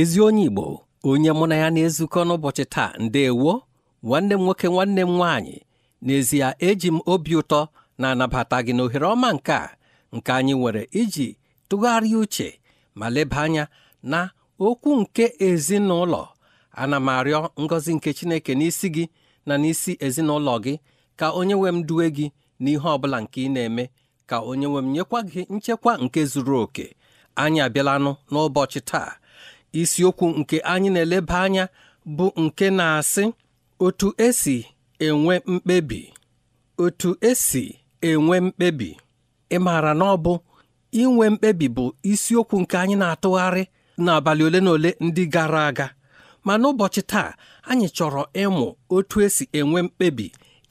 ezi onye Igbo onye mụ na ya na-ezukọ n'ụbọchị taa ndeewo nwanne m nwoke nwanne m nwaanyị n'ezie eji m obi ụtọ na-anabata gị n'ohere ọma nke a nke anyị nwere iji tụgharịa uche ma leba anya na okwu nke ezinụlọ ana m arịọ ngọzi nke Chineke n'isi gị na n'isi ezinụlọ gị ka onye nwe m duwe gị n'ihe ọ bụla nke ị na-eme ka onye nwe m nyekwa gị nchekwa nke zuru oke anyị abịalanụ n'ụbọchị taa isiokwu nke anyị na-eleba anya bụ nke na-asị otu esi enwe mkpebi otu esi enwe mkpebi ị maara na ọ bụ inwe mkpebi bụ isiokwu nke anyị na-atụgharị n'abalị ole na ole ndị gara aga ma n'ụbọchị taa anyị chọrọ ịmụ otu esi enwe mkpebi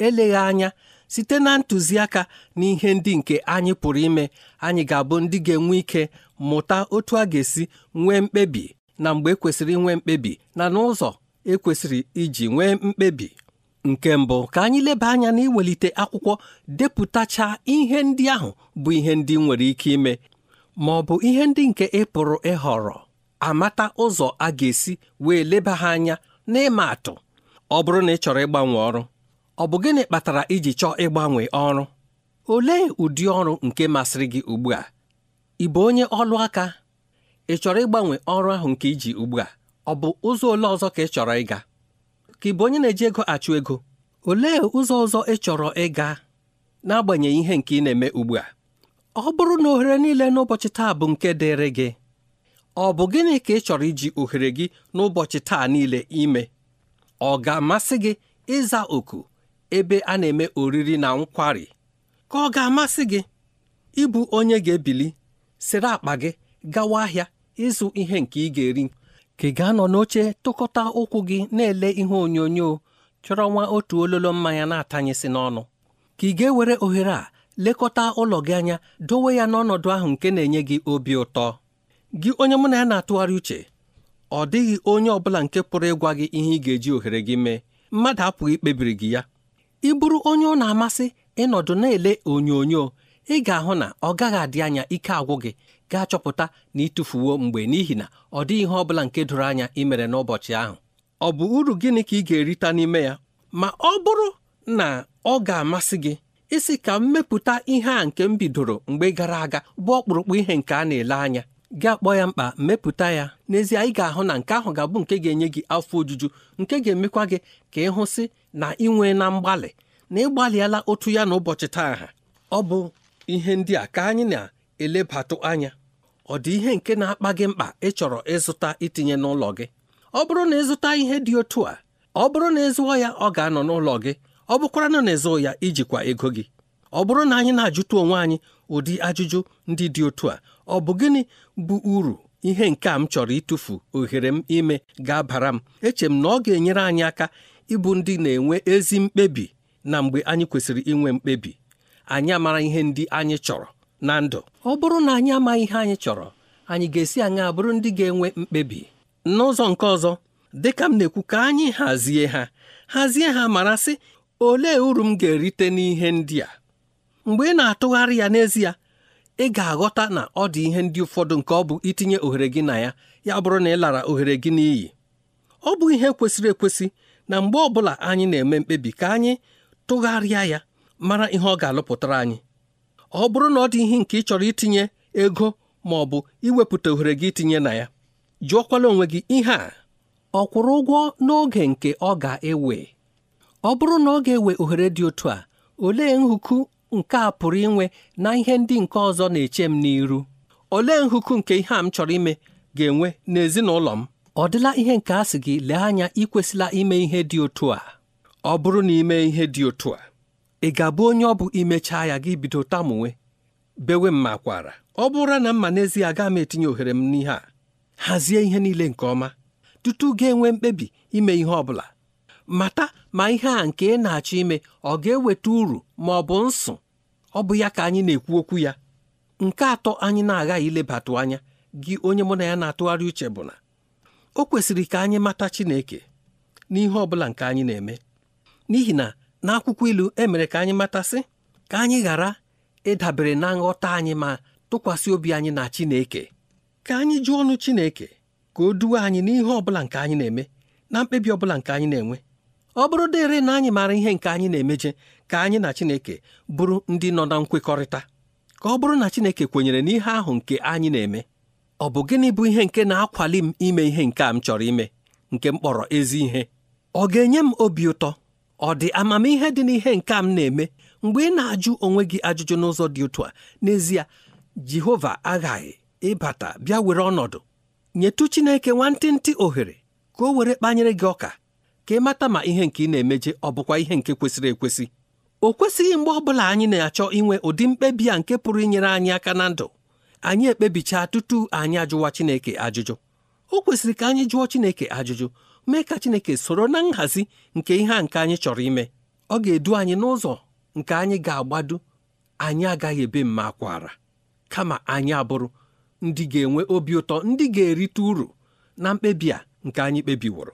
eleghị anya site na ntụziaka na ihe ndị nke anyị pụrụ ime anyị ga-abụ ndị ga-enwe ike mụta otu a ga-esi nwee mkpebi na mgbe ekwesịrị inwe mkpebi na n'ụzọ ekwesịrị iji nwee mkpebi nke mbụ ka anyị leba anya na iwelite akwụkwọ depụtacha ihe ndị ahụ bụ ihe ndị nwere ike ime ma ọ bụ ihe ndị nke ị pụrụ ịhọrọ amata ụzọ a ga-esi wee leba ha anya n'ịma atụ ọ bụrụ na ị chọrọ ịgbanwe ọrụ ọ bụ gịnị kpatara iji chọọ ịgbanwe ọrụ olee ụdị ọrụ nke masịrị gị ugbu a ị bụ onye ọlụ aka ị chọrọ ịgbanwe ọrụ ahụ nke iji ugbu a ọ bụ ụzọ ole ọzọ ka ị chọrọ ịga ka ị bụ onye na-eji ego achụ ego olee ụzọ ọzọ ị chọrọ ịga n'agbanyeghị ihe nke ị na-eme ugbu a ọ bụrụ na ohere niile n'ụbọchị taa bụ nke dịrị gị ọ bụ gịnị ka ị chọrọ iji ohere gị n'ụbọchị taa niile ime ọ ga-amasị gị ịza oku ebe a na-eme oriri na nkwari ka ọ ga-amasị gị ịbụ onye ga-ebili sịrị akpa gị gawa ahịa ịzụ ihe nke ị ga-eri ka ị ga-anọ n'oche tụkọta ụkwụ gị na-ele ihe onyonyo chọrọ nwa otu ololo mmanya na-atanyesị n'ọnụ ka ị ga-ewere ohere a lekọta ụlọ gị anya dowe ya n'ọnọdụ ahụ nke na-enye gị obi ụtọ gị onye mụ na ya na-atụgharị uche ọ dịghị onye ọ bụla nke pụrụ ịgwa gị ihe ị ga-eji ohere gị mee mmadụ apụghị ikpebiri gị ya ị bụrụ onye ọ na-amasị ịnọdụ na-ele onyonyo ị ga-ahụ na ọ gaghị adị anya ike agwụ gị ga-achọpụta na ịtụfuwo mgbe n'ihi na ọ dịghị ihe ọ bụla nke doro anya ị mere n'ụbọchị ahụ ọ bụ uru gịnị ka ị ga-erita n'ime ya ma ọ bụrụ na ọ ga-amasị gị isi ka m mepụta ihe a nke m bidoro mgbe gara aga bụ ọkpụrụkpụ ihe nke a na-ele anya gị akpọ ya mkpa mepụta ya n'ezie ị ga-ahụ na nke ahụ ga-abụ nke ga-enye gị afọ ojuju nke ga-emekwa gị ka ị hụsị na ị nwee na mgbalị na ị otu ya na ụbọchị taa ha ọ bụ ihe ndị a ka anyị na elebatụ anya ọ dị ihe nke na-akpa gị mkpa ị chọrọ ịzụta itinye n'ụlọ gị ọ bụrụ na ịzụta ihe dị otu a ọ bụrụ na ịzụọ ya ọ ga-anọ n'ụlọ gị ọ bụkwara na na-ezụ ya ijikwa ego gị ọ bụrụ na anyị na-ajụta onwe anyị ụdị ajụjụ ndị dị otu a ọ bụ gịnị bụ uru ihe nke a m chọrọ ịtụfu ohere m ime ga-abara m eche m na ọ ga-enyere anyị aka ịbụ ndị na-enwe ezi mkpebi na mgbe anyị kwesịrị inwe mkpebi anyị amara ihe ndị anyị chọrọ na ndụ ọ bụrụ na anyị amaghị ihe anyị chọrọ anyị ga-esi aṅaa bụrụ ndị ga-enwe mkpebi n'ụzọ nke ọzọ dịka m na-ekwu ka anyị hazie ha hazie ha mara sị olee uru m ga-erite n'ihe ndị a mgbe ị na-atụgharị ya n'ezie ị ga-aghọta na ọ dị ihe ndị ụfọdụ nke ọ bụ itinye ohere gị na ya ya bụrụ na ị lara ohere gị n'iyi ọ bụ ihe kwesịrị ekwesị na mgbe ọbụla anyị na-eme mkpebi ka anyị tụgharịa ya mara ihe ọ ga-alụpụtara anyị ọ bụrụ na ọ dị ihe nke ị chọrọ itinye ego ma ọ bụ iwepụta ohere gị itinye na ya jụọkwala onwe gị ihe a ọ kwụrụ ụgwọ n'oge nke ọ ga-ewe ọ bụrụ na ọ ga-ewe ohere dị otu a olee nhụku nke a pụrụ inwe na ihe ndị nke ọzọ na-eche m n'iru olee nhụku nke ihe a m chọrọ ime ga-enwe n'ezinụlọ m ọ dịla ihe nke a sị gị lee anya ikwesịla ime ihe dị otu a ọ bụrụ na ime ihe dị otu a ị ga-abụ onye ọ bụ imechaa ya gị bido tamunwe bewe m makwara ọ bụrụ na mma n'ezie agaghị m etinye ohere m n'ihe a hazie ihe niile nke ọma tutu ga-enwe mkpebi ime ihe ọ bụla mata ma ihe a nke ị na-achọ ime ọ ga-eweta uru ma ọ bụ nsụ ọ bụ ya ka anyị na-ekwu okwu ya nke atọ anyị na-aghaghị ilebatụ anya gị onye mụ na ya na-atụgharị uche bụ na o kwesịrị ka anyị mata Chineke n'ihe ọ bụla nke anyị na-eme n'ihi na n'akwụkwọ ilu emere ka anyị matasị ka anyị ghara ịdabere na nghọta anyị ma tụkwasị obi anyị na Chineke ka anyị jụọ ọnụ Chineke ka o duwe anyị n'ihe ọ bụla nke anyị na-eme na mkpebi ọ bụla nke anyị na-enwe ọ bụrụ dịrị na anyị maara ihe nke anyị na-emeje ka anyị na Chineke bụrụ ndị nọ na nkwekọrịta ka ọ bụrụ na Chineke kwenyere n'ihe ahụ nke anyị na-eme ọ bụ gịnị bụ ihe nke na-akwali m ime ihe nke a m chọrọ ime nke m kpọrọ ezi ihe ọ ga-enye m obi ụtọ ọ dị amamihe dị n'ihe nke m na-eme mgbe ị na-ajụ onwe gị ajụjụ n'ụzọ dị otu a n'ezie Jehova aghaghị ịbata bịa were ọnọdụ nyetụ Chineke nwantịntị ohere ka o were kpanyere gị ọka ka ị mata ma ihe nke ị na-emeje ọ bụkwa ihe nke kwesịrị ekwesị o kwesịghị mgbe ọ bụla anyị na-achọ inwe ụdị mkpebi a nke pụrụ inyere anyị aka na ndụ anyị ekpebichaa tutu anyị ajụwa Chineke ajụjụ o kwesịrị ka anyị jụọ Chineke ajụjụ mee ka Chineke soro na nhazi nke ihe a nke anyị chọrọ ime ọ ga-edu anyị n'ụzọ nke anyị ga-agbado anyị agaghị ebe mma kwara kama anyị abụrụ ndị ga-enwe obi ụtọ ndị ga-erite uru na mkpebi a nke anyị kpebiworo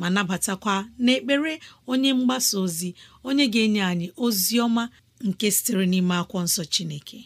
ma nabatakwa n'ekpere onye mgbasa ozi onye ga-enye anyị ozi ọma nke sitere n'ime akwụkwọ nsọ Chineke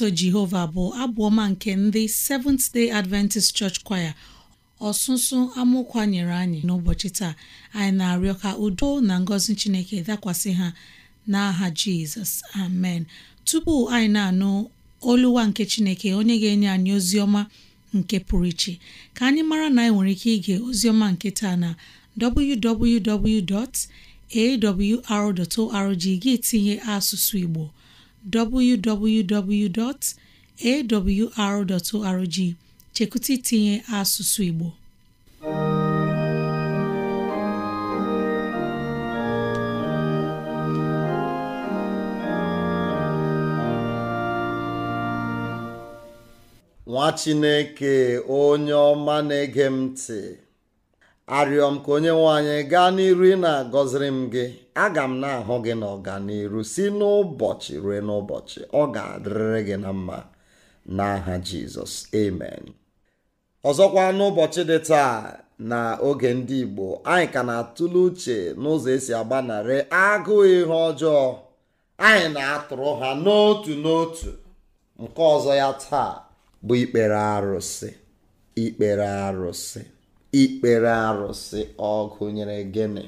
otuto jehova bụ abụ ọma nke ndị Seventh Day Adventist Church Choir ọsụsụ amụkwa nyere anyị n'ụbọchị taa anyị na-arịọ ka udo na ngọzi chineke dakwasị ha n'aha jizọs amen tupu anyị na-anụ oluwa nke chineke onye ga-enye anyị ozi ọma nke pụrụ iche ka anyị mara na anyị nwere ike ige ozioma nke taa na www.awr.org gị tinye asụsụ igbo www.awr.org chekwụta itinye asụsụ Igbo nwa Chineke onye ọma na-ege m ntị arịọ m ka onye nwe anyị gaa n'iru ị na-agọziri m gị aga m na-ahụ gị n'ọganiru si n'ụbọchị ruo n'ụbọchị ọ ga-adịrịrị gị na mma n'aha jizọs amen ọzọkwa n'ụbọchị dị taa na oge ndị igbo anyị ka na-atụle uche n'ụzọ esi agbanarị agụụ ihe ọjọọ anyị na-atụrụ ha n'otu n'otu nke ọzọ ya taa bụ ikpere arụsị ikpere arụsị ikpere arụsị ọgụ nyere gịnị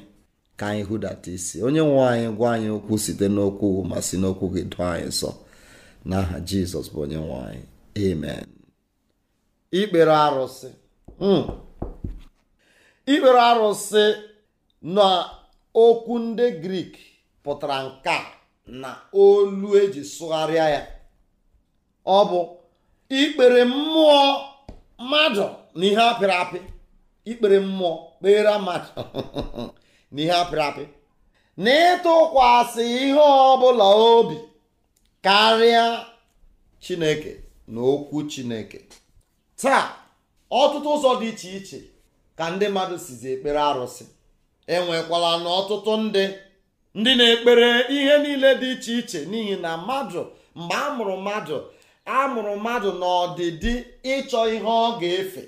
ka anyị hụdata isi onye nwe anyị gwa anyị okwu site n'okwu ma si n'okwu gị dụ anyị nsọ n'aha jizọs bụ onye nwe anyị amen ikpere arụsị hmm. ikpere arụsị na okwu ndị grik pụtara nke na olu eji sụgharịa ya ọ bụ ikpere mmụọ mmadụ na ihe apịrị apị ikpere mmụọ kpere mmadụ na ihe apịrị apị na ịtụkwasị ihe ọbụla obi karịa chineke na okwu chineke taa ọtụtụ ụzọ dị iche iche ka ndị mmadụ sizi ekpere arụsị enwekwala na ọtụtụ ndị ndị na-ekpere ihe niile dị iche iche n'ihi na mmadụ mgbe a mụrụ mmadụ a mụrụ mmadụ n'ọdịdị ịchọ ihe ọ ga-efe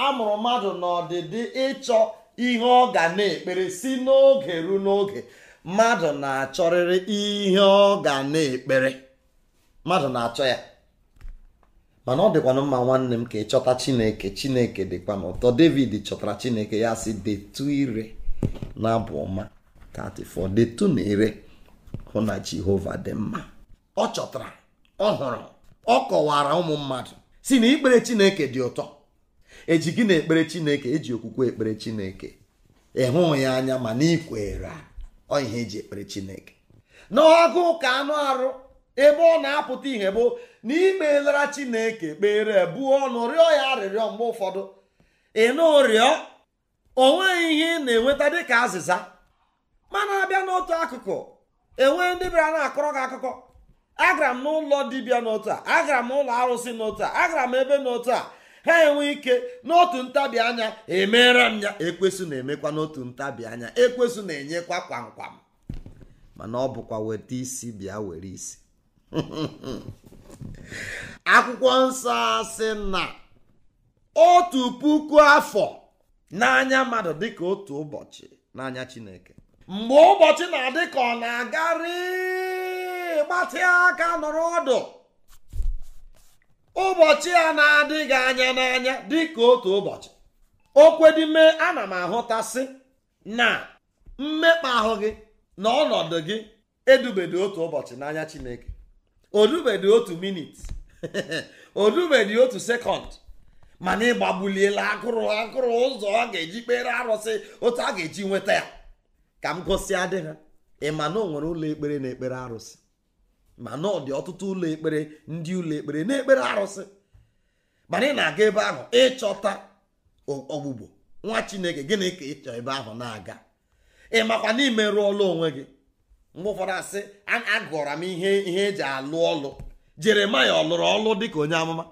a mụrụ mmadụ n'ọdịdị ịchọ ihe ọ ga na-ekpere si n'oge ruo n'oge mmadụ na-achọrịrị ihe ọ ga na-ekpere mmadụ na-achọ ya mana ọ dịkwanụ mma nwanne m ka ị chineke chineke dịkwa na ụtọ david chọtara chineke ya si detu ire na abụ ọma 34 detu na ire hụ na jehova dị mma ọ chọtara ọ hụrụ ọ kọwara ụmụ mmadụ si na ikpere chineke dị ụtọ eji gị na ekpere chineke eji okwukwe ekpere chineke ịhụ ya anya ma na ikwere ọ ihe eji ekpere chineke n'ọgụ ka anụ arụ ebe ọ na-apụta ihe bụ na imelara chineke kpere buo ọnụ rịọ ya arịrịọ mgbe ụfọdụ ị rịọ o nweghị ihe ị na-enweta dịka azịza mana abịa n'otu akụkụ enwee ndị bịara na-akọrọ gị akụkọ agara m n'ụlọ dibịa n'otu a agara m ụlọ arụsị n'otu a agara m ebe n'otu a ha enwe ike n'otu ntabi anya emeera m ya ekwesụ na-emekwa n'otu ntabi anya ekwesụ na-enyekwa kwamkwam mana ọ bụkwa weta isi bịa were isi akwụkwọ nsọ sị na otu puku afọ n'anya mmadụ dịka otu ụbọchị n'anya chineke mgbe ụbọchị na-adị ka ọ na-agarị gbatịa aka nọrọ ọdụ ụbọchị a na-adịghị anya n'anya dịka otu ụbọchị a ana m ahụtasị na mmekpa ahụ gị na ọnọdụ gị edubedị otu ụbọchị n'anya chineke odubedị otu minit odubedị otu sekọnd mana ịgbagbuliela agụrụ agụrụ ụzọ ọ ga-eji kpere arụsị otu a ga-eji nweta ya ka m gosi adị ha ị ma na o nwere ụlọ ekpere na ekpere arụsị ma na ọ dị ọtụtụ ụlọ ekpere ndị ụlọ ekpere na-ekpere arụsị mana ị na-aga ebe ahụ ịchọta ọgbụgbo nwa chineke gịnị ka ịchọ ebe ahụ na-aga ị makwa na imerụ ọlụ onwe gị mgbe ụfọdụ asị agụra m ihe ihe eji alụ ọlụ jeremaya ọ lụrụ ọlụ dịka onye amụma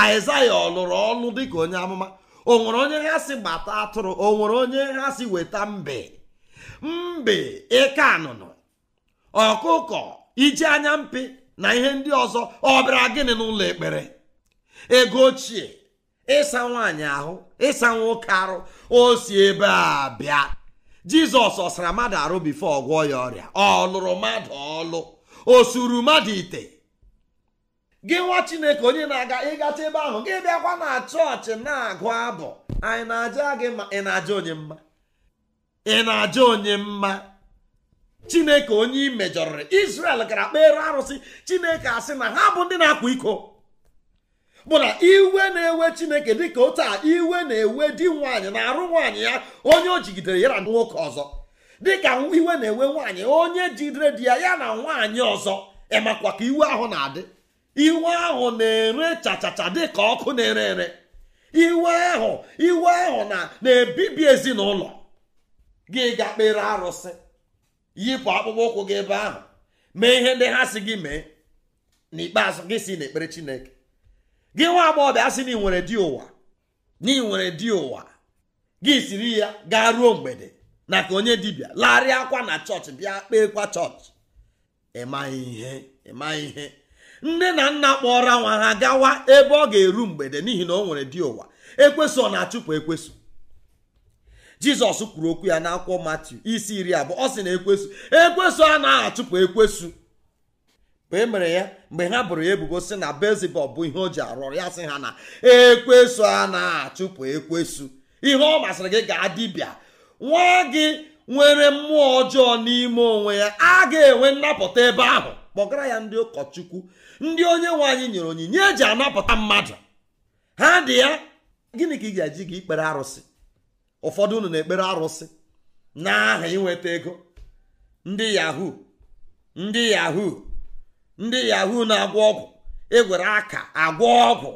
aịzaya ọ lụrụ ọlụ dịka onye amụma o nwere onye ha si gbata atụrụ o nwere onye ha si weta mbe mbe eke anụnụ ọkụkọ iji anya mpi na ihe ndị ọzọ ọ bịara gịnị n'ụlọ ekpere ego ochie ịsa nwaanyị ahụ ịsa nwoke arụ o si ebe a bịa jizọs ọ sara mmadụ arụ bifo ọgwọ ya ọrịa ọ lụrụ mmadụ ọlụ o suru mmadụ ite gị nwa chineke onye na-aga ịgacha ebe ahụ gị bịakwa na chọọchị na-agụ abụ anyị na-aja gị ma ị na-aja onye mma ị na-aja onye mma chineke onye imejọrịrị israel gara kpere arụsị chineke asị na ha bụ ndị na-akwa iko bụ na iwe na-ewe chineke dịka otu a iwe na-ewe di nwaanyị na-arụ nwaanyị ya onye o jigidere ya na nwoke ọzọ dịka iwe na-ewe nwanyị onye jidere di ya ya na nwanyị ọzọ ịmakwa ka iwe ahụ na-adị iwe ahụ na-ere chachacha dịka ọkụ na-ere ere iwe ahụ iwe ahụ na na-ebibi ezinụlọ gị ga-akpere arụsị yipụ akpụkpọ ụkwụ gị ebe ahụ mee ihe ndị ha si gị mee n'ikpeazụ gị si n'ekpere chineke gị nwa agbọghọbịa asị na ị nwere di ụwa na ị nwere di ụwa gị siri ya gaa ruo mgbede na ka onye dibịa larịa akwa na chọọchị bịa kpeekwa chọọchị ịmaghị ihe ịmaghị ihe nne na nna kpọrọ nwa ha gawa ebe ọ ga-eru mgbede n'ihi na o nwere di ụwa ekweso ọ na-achụpụ ekwesị jizọs kwuru okwu ya n'akwụkwọ matiu isi iri abụọ ọ sị na ekwesu ekwesu na achụpụ ekwesu mgbe emere ya mgbe ha bụrụ ya ebubo si na bezibọl bụ ihe o ji arụ ọrụ ya sị ha na ekwesu na achụpụ ekwesu ihe ọ masịrị gị gaa dibịa nwa gị nwere mmụọ ọjọọ n'ime onwe ya a ga-enwe nnapụta ebe ahụ kpọgara ya ndị ụkọchukwu ndị onye nwe anyị nyere onyinye eji anapụta mmadụ ha dị ya gịnị ka ị ga-eji gị ikpere arụsị ụfọdụ unu na-ekpere arụsị n'aha inweta ego ndị yahu ndị yahu ndị yahu na-agwọ ọgwụ egwere aka agwọ ọgwụ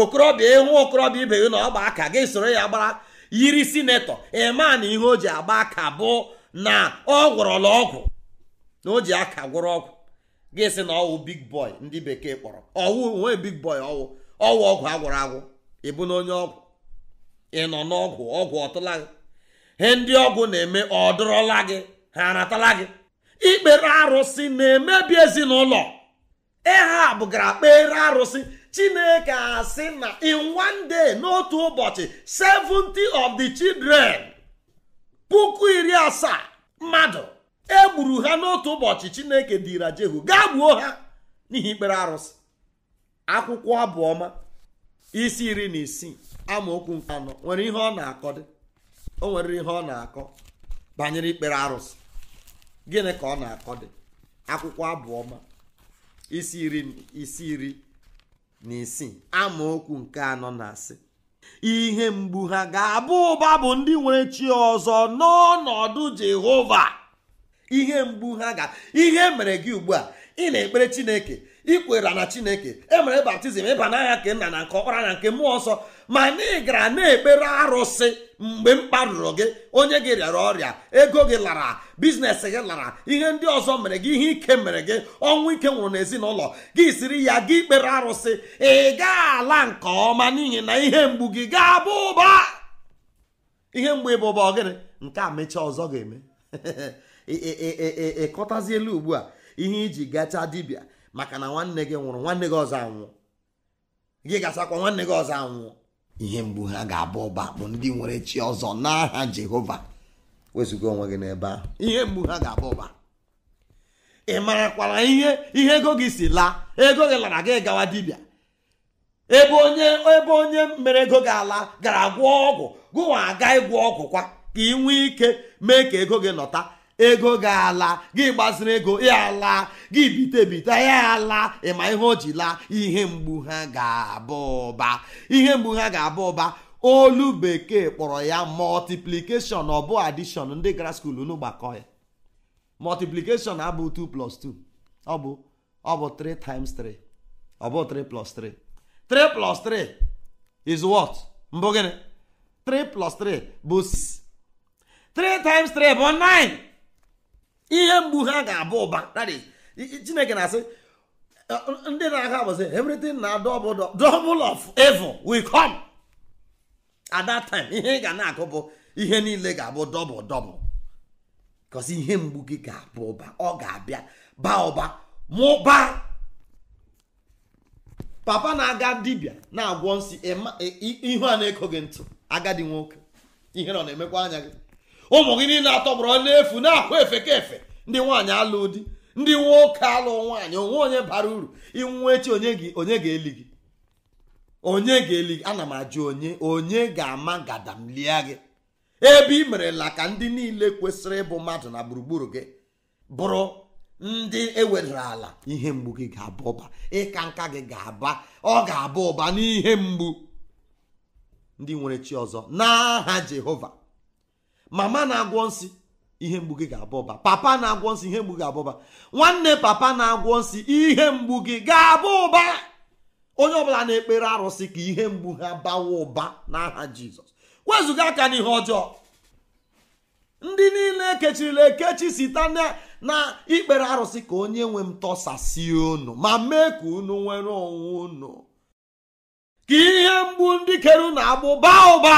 okorobịa ịhụ e okorobịa ibe gị na ọgba aka gị soro ya gbara yiri sinetọ ema na ihe o ji agba aka bụ na ọ gwọrọla ọgwụ na o ji aka gwụrụ ọgwụ gị sị na ọwụ big boy ndị bekee kpọrọ ọwụ onwe big boy ọwụ ọwụ ọgwụ agwụrụ agwụ ịbụ na onye ọgwụ ị nọ n'ọgwụ ọgwụ ọtụla gị ihe ndị ọgwụ na-eme ọdụrọla gị ha aratala gị ikpere arụsị na-emebi ezinụlọ ịha bụgara kpere arụsị chineke asị na in one day n'otu ụbọchị 70 of the children puku iri asaa mmadụ egburu ha n'otu ụbọchị chineke dira jehu gaa gbuo ha n'ihi ikpere arụsị akwụkwọ abụọma isi iri na isii amaokwu nke anọ nwere ihe ọ na-akọ dị o nwere ihe ọ na-akọ banyere ikpere arụsị gịnị ka ọ na-akọ dị akwụkwọ abụọma isi iri isi iri na isii amaokwu nke anọ na-asị ihe mgbu ha ga-abụ ụba bụ ndị nwere chi ọzọ n'ọnọdụ Jehova ihe mgbu ha ga ihe mere gị ugbu a ị na-ekpere Chineke ikwera na Chineke emere baptizim ịba n'anya nke nna na nke ọkpara na nke mmụọ nsọ ma na ị gara na-ekpere arụsị mgbe m kparụrụ gị onye gị rịara ọrịa ego gị lara biznes gị lara ihe ndị ọzọ mere gị ihe ike mere gị ọnwụ ike nwụrụ n'ezinụlọ gị siri ya gị kpere arụsị ị gaa ala nke ọma n'ihi na ihe mgbu gị ga-abụ ụba ihe mgbu ịbụ ụba ọgịnị nke a mechaa ọzọ ga-eme ịkọtazi elu ugbu a ihe iji gachaa dibịa maka na nwanne gị nwụrụ nwanne gị ọzọ anwụọ gị gasakwa nwanne gị ọzọ anwụọ ihe mgbu ha ga-abụ ụba bụ ndị nwere chi ọzọ n'aha jehova wezụga onwe gị n'ebe ahụ ihe mgbu ha ga-abụ ụba ị marakwara ihe ihe ego gị si laa ego gị lara gị gawa dibịa ebe onye ebe onye mere ego gị ala gara gwọ ọgwụ gụwa aga ịgwọ ọgwụ kwa ka ị nwee ike mee ka ego gị nọta ego ga-ala gị gbaziri ego ya ala gị bite bite ya ala ịma ihe o ji laa ihe mgbu ha ga abụ ụba ihe mgbu ha ga abụ ụba olu bekee kpọrọ ya multiplication ọ bụ addition ndị gara skuul n'ụgbakọ ya multiplication abụ 2 plus 2 ọ bụ ọ bụ 3 times 3 ọ bụ 3 plus 3 3 plus 3 is what mbụ gịnị 3 plus 3 bụ 3 times 3 bụ 9 ihe mgbu ha ga-abụ ụba chineke na-asị ndị na-aga abụsị everything na double of evil will come at that time ihe ị ga na-akụ bụ ihe niile ga-abụ double double kọsi ihe mgbu gị ga-abụ ụba ọ ga-abịa ba ụba mụba papa na-aga dibịa na-agwọ nsị ihu a na gị ntụ agadi nwoke ihe nọ na-emekwa anya gị ụmụ gị niile atọgbọrọ n'efu na-akwa efe ka efe ndị nwaanyị alụ di ndị nwoke alụ nwaanyị onwe onye bara uru inwe echi onye gị onye ga-eli gị onye ga-eli gị ana m ajụ onye onye ga-ama lie gị ebe ị merela ka ndị niile kwesịrị ịbụ mmadụ na gburugburu gị bụrụ ndị ewedara ala ihe mgbu gị ga-aba ụba ịka nka gị ga-aba ọ ga-aba ụba n'ihe mgbu ndị nwere chi ọzọ n'aha Jehova mama na-agwọ nsị ihe mgbu gị ga-abụba papa na-agwọ nsị ihe mgbu gị ụba nwanne papa na-agwọ nsị ihe mgbu gị ga-abụ ụba onye ọbụla na-ekpere arụsị ka ihe mgbu ha bawa ụba n'aha jizọs wezụga aka n'ihe ọjọọ ndị niile ekechirila ekechi site na ikpere arụsị ka onye nwe m tọsasị unu ma mee ka unu nwere onwe unu ka ihe mgbu ndị kere na-agbụ baa ụba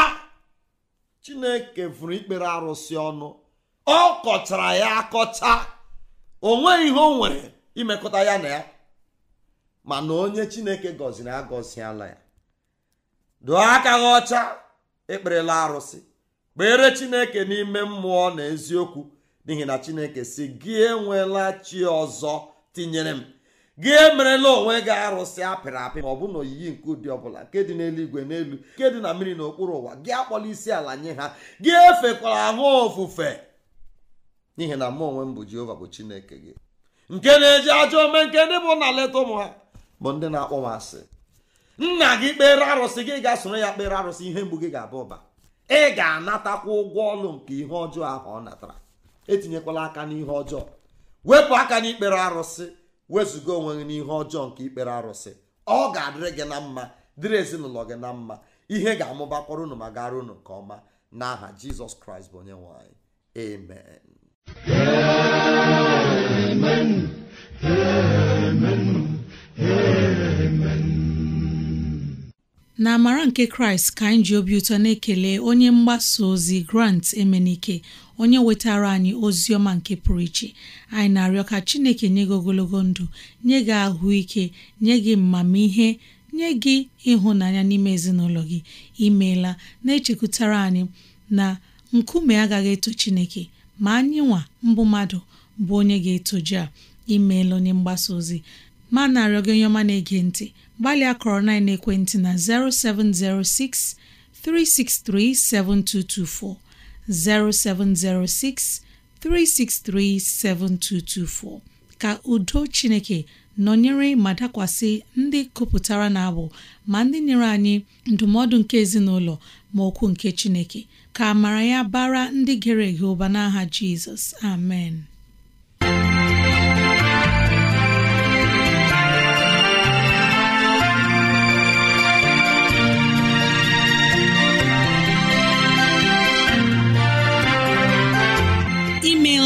chineke vụrụ ikpere arụsị ọnụ ọ kọchara ya akọcha o nweghị ihe o nwere imekọta ya na ya mana onye chineke gọziri na ya dụọ aka gị ọcha ekperela arụsị kpere chineke n'ime mmụọ na eziokwu n'ihi na chineke si gị enwela chi ọzọ tinyere m gị emerela onwe gị arụsị apịrị apị ma ọ bụ na oyiyi nke ụdị ọbụla nke dị n'eluigwe n'elu nke dị na mmiri n'okpuru ụwa gị akpọla isi ala nye ha gị efekwara ahụ ofufe n'ihi na mụ onwe m bụ jehova bụ chineke gị nke na-eji ajọ ome nke ndị bụ na leta ụmụ ha bụ ndị na-akpọ m asị nna gị kpere arụsị gị ga-asoro ya kpere arụsị ihe mgbu gị ga abụ ụba ị ga-anatakwa ụgwọ ọlụ nke ihe ọjọọ ahụ ọ natara etinyekwala aka n'ihe ọjọọ wepụ aka n'ikpere arụsị wezụga onwe gị n'ihe ọjọọ nke ikpere arụsị ọ ga-adịrị gị na mma dịrị ezinụlọ gị na mma ihe ga-amụbakwara unu ma gara unu nke ọma n'aha jizọs kraịst bụ onye nwanyị amen na amara nke kraịst ka anyị ji obi ụtọ na-ekele onye mgbasa ozi grant emenike onye wetara anyị ozi ọma nke pụrụ iche anyị na-arịọ ka chineke nye gị ogologo ndụ nye gị ahụike nye gị mmamihe nye gị ịhụnanya n'ime ezinụlọ gị imeela na-echekwutara anyị na nkume agaghị eto chineke ma anyị nwa mbụ mmadụ bụ onye ga-etoje a imeela onye mgbasa ozi ma na-arịọ gị onye na-ege ntị gbalịa kọrọ na ekwentị na 0706 363 7224 0706 363 7224 ka udo Chineke nọnyere ma dakwasị ndị kụpụtara na-abụ ma ndị nyere anyị ndụmọdụ nke ezinụlọ ma okwu nke Chineke ka a mara ya bara ndị gere ege ụba n'aha Jizọs amen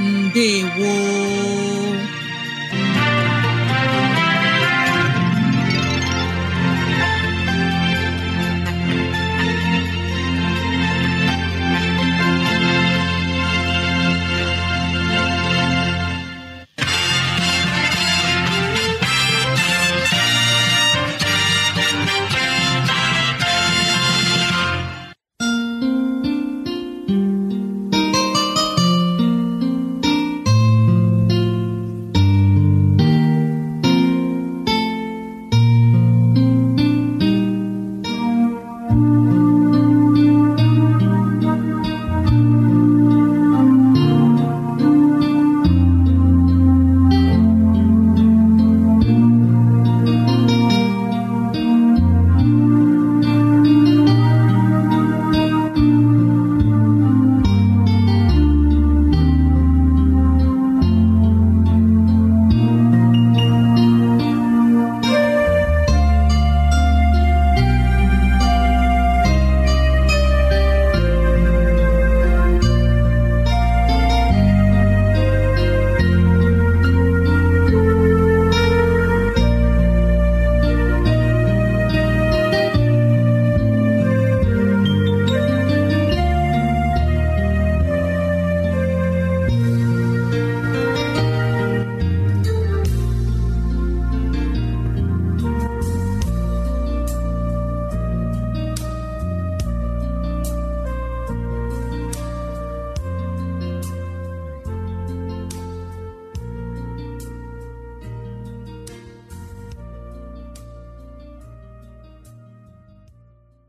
ndewo